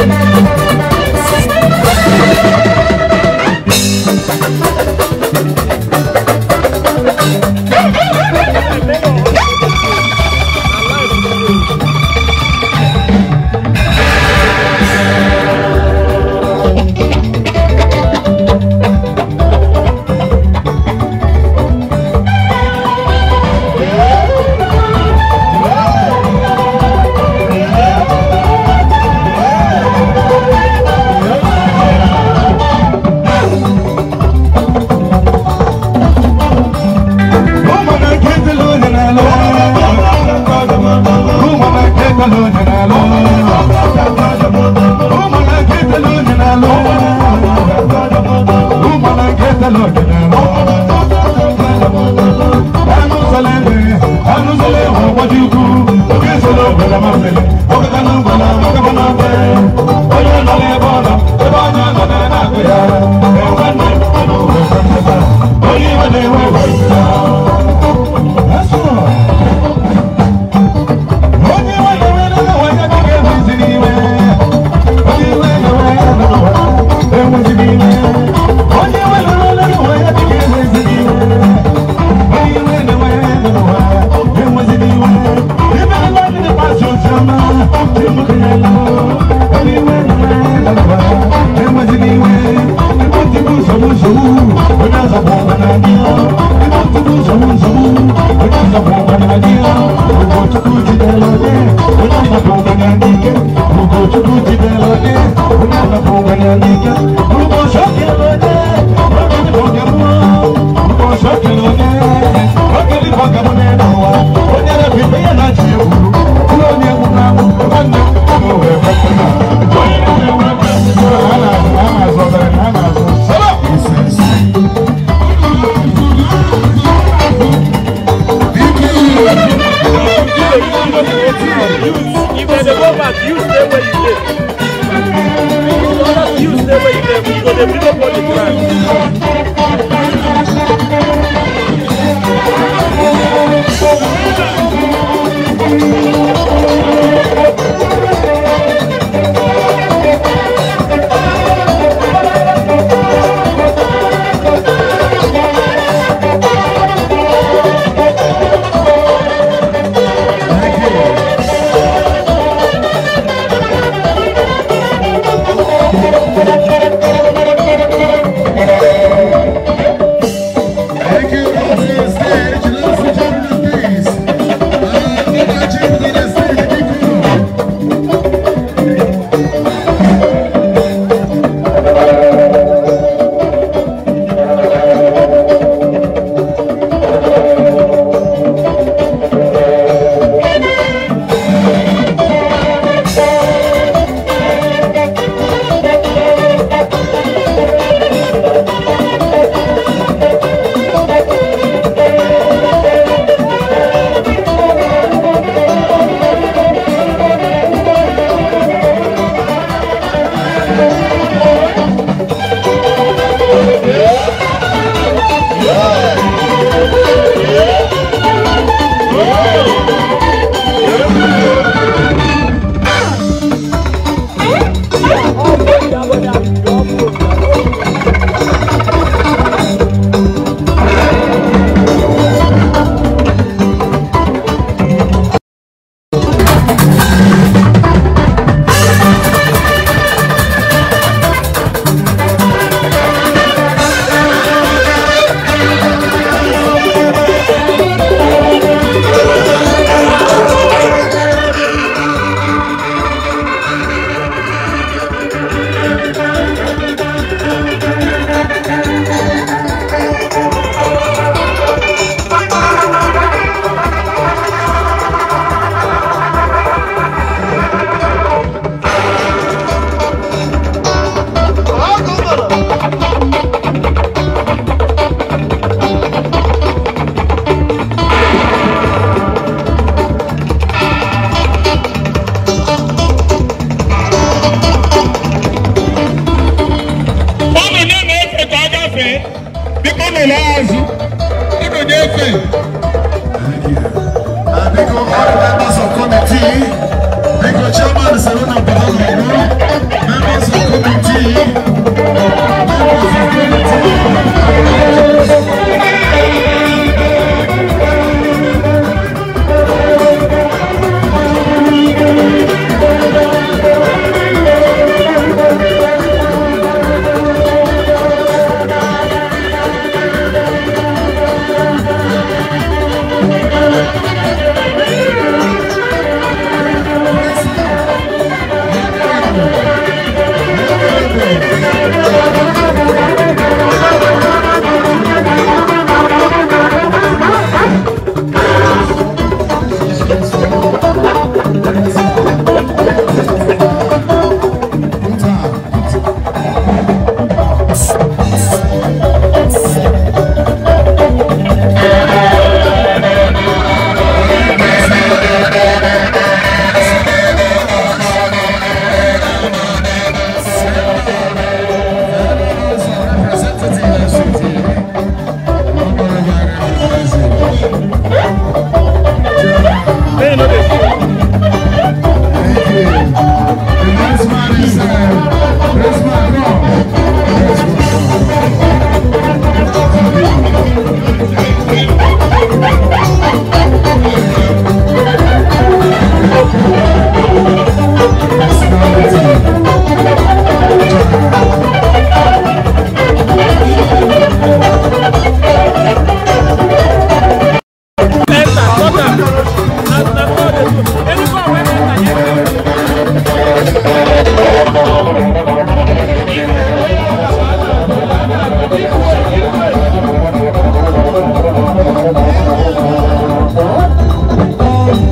Amen.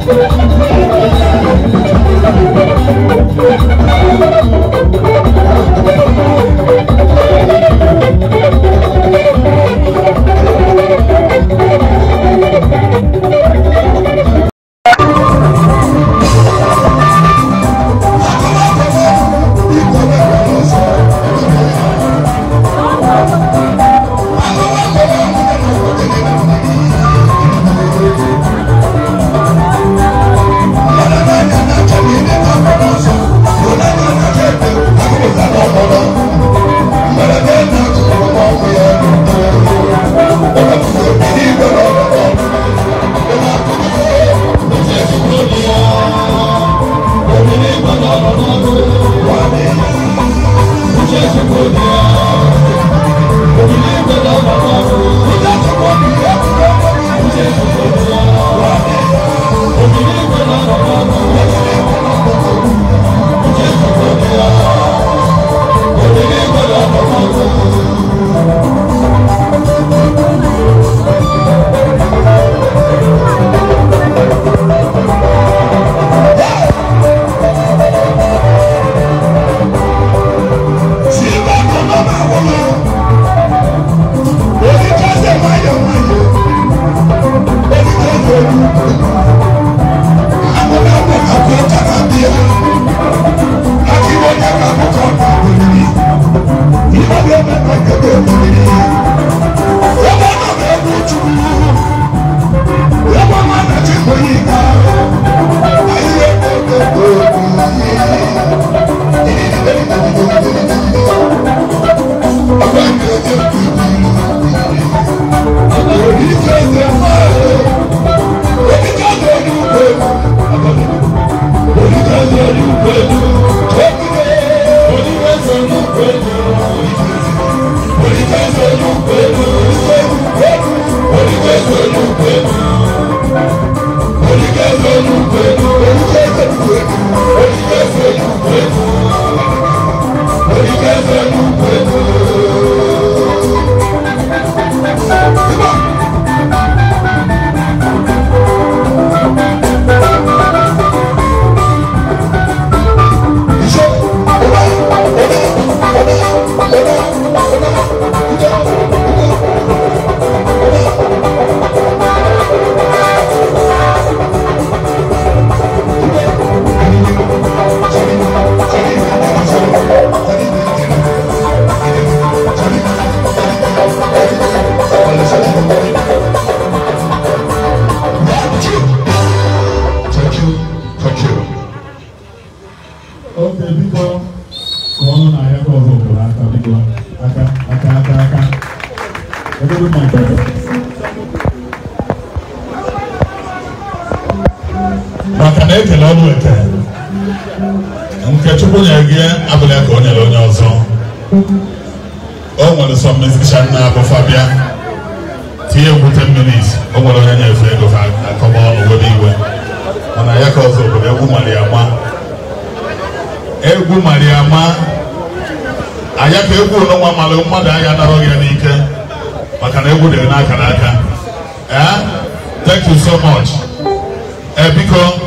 ¡Gracias! Ebe ọ nọ n'egwu ọ na ekele ọ nweta nke chukwu nyere gị abụla ka o nyere onye ọzọ o nwere sọ mmesicha nna abụ bịa tinye egwu 10 minutes o nwere onye nyefe ego ha akọba ọnụ were iwe mana ya ka ọzọ obodo egwu mara ya ma egwu mara ya ma anya ka egwu n'ọnwa mara mmadụ anya narọ ya n'ike maka na egwu dịrị n'aka n'aka ee eh? thank you so much ee eh, biko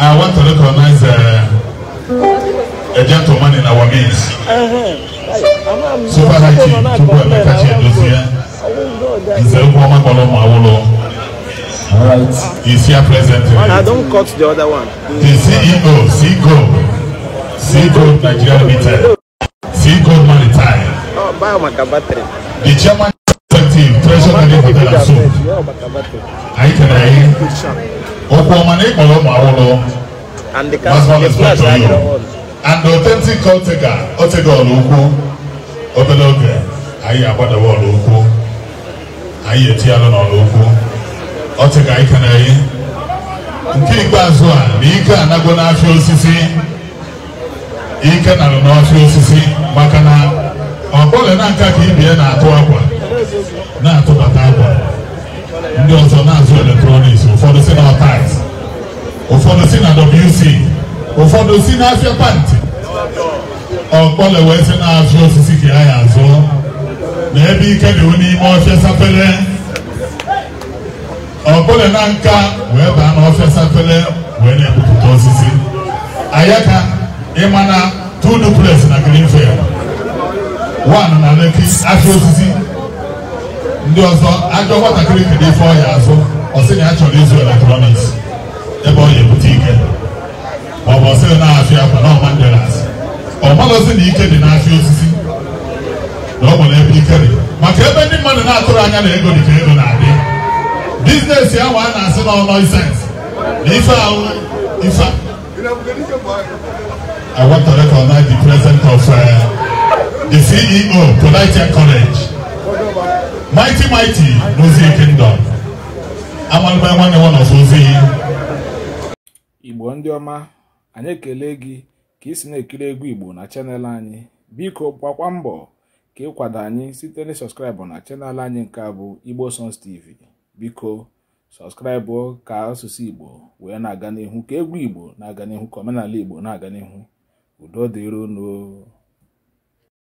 I want to recognize uh, a gentleman in our midst. Super Haiti, Chukwu Emeka Chiedozie, Nzerugu Omakolo Mawolo. All right. He's here present. Man, I don't cut the other one. The CEO, CEO, CEO Nigeria Limited, CEO Maritime. Oh, buy my battery. The chairman. chief treasure ndị pụtara nso anyị kere anyị okwu ọma na ịkpọrọ ụmụ awụrụ and authentic otega otega ọrụ ukwu obere oge anyị agbadawa ọrụ ukwu anyị etinyalụ n'ọrụ ukwu otega anyị kere anyị nke ikpeazụ a na ike anago n'afịa osisi ike nara n'ọfịa osisi maka na ọ bụla na nka ka ibie na-atụ akwa na-atụbata akwa ndị ọzọ na-azụ eletrọniks ụfọdụ si na ọtais ụfọdụ si na wc ụfọdụ si na afịa pantị ọkpọle wee sị na-azụ osisi ka ya ya azụọ na ebe ike dị n'ime ọfịa sapele ọkpọle na nka wee baa n'ọfịa sapele wee na-ebupụta osisi ayaka ịma na two duplex na greenfield one na leki afịa osisi ndị ọzọ ajọ nwatakịrị kere ife ọhịa azụ ọsị na ya chọrọ ịzụ eletrọniks ebe ọ na-ebute ike ma ọ bụ ọsị na afịa akwa na ọma ndelas ọ malụzi na ike dị n'afịa osisi na ọ nwere ebe ike dị maka ebe ndị mmadụ na-atụrụ anya na ego dị ka ego na-adị bizinesi ahụ a na-asị na ọnọ isens na ife ahụ ife I want to recognize the president of uh, the CEO, Polite College. mighty mighty n'ozi kingdom amalụba nwanne nwa n'ọzọ ozi igbo ndị ọma anyị ekele gị ka ị na-ekiri egwu igbo na chanel anyị biko gbakwa mbọ ka ịkwado anyị site na sọskraịbụ na chanel anyị nke abụ bụ igbo sons tv biko sọskraịbụ ka asụsụ igbo wee na-aga n'ihu ka egwu igbo na-aga n'ihu ka omenala igbo na-aga n'ihu udo dịrono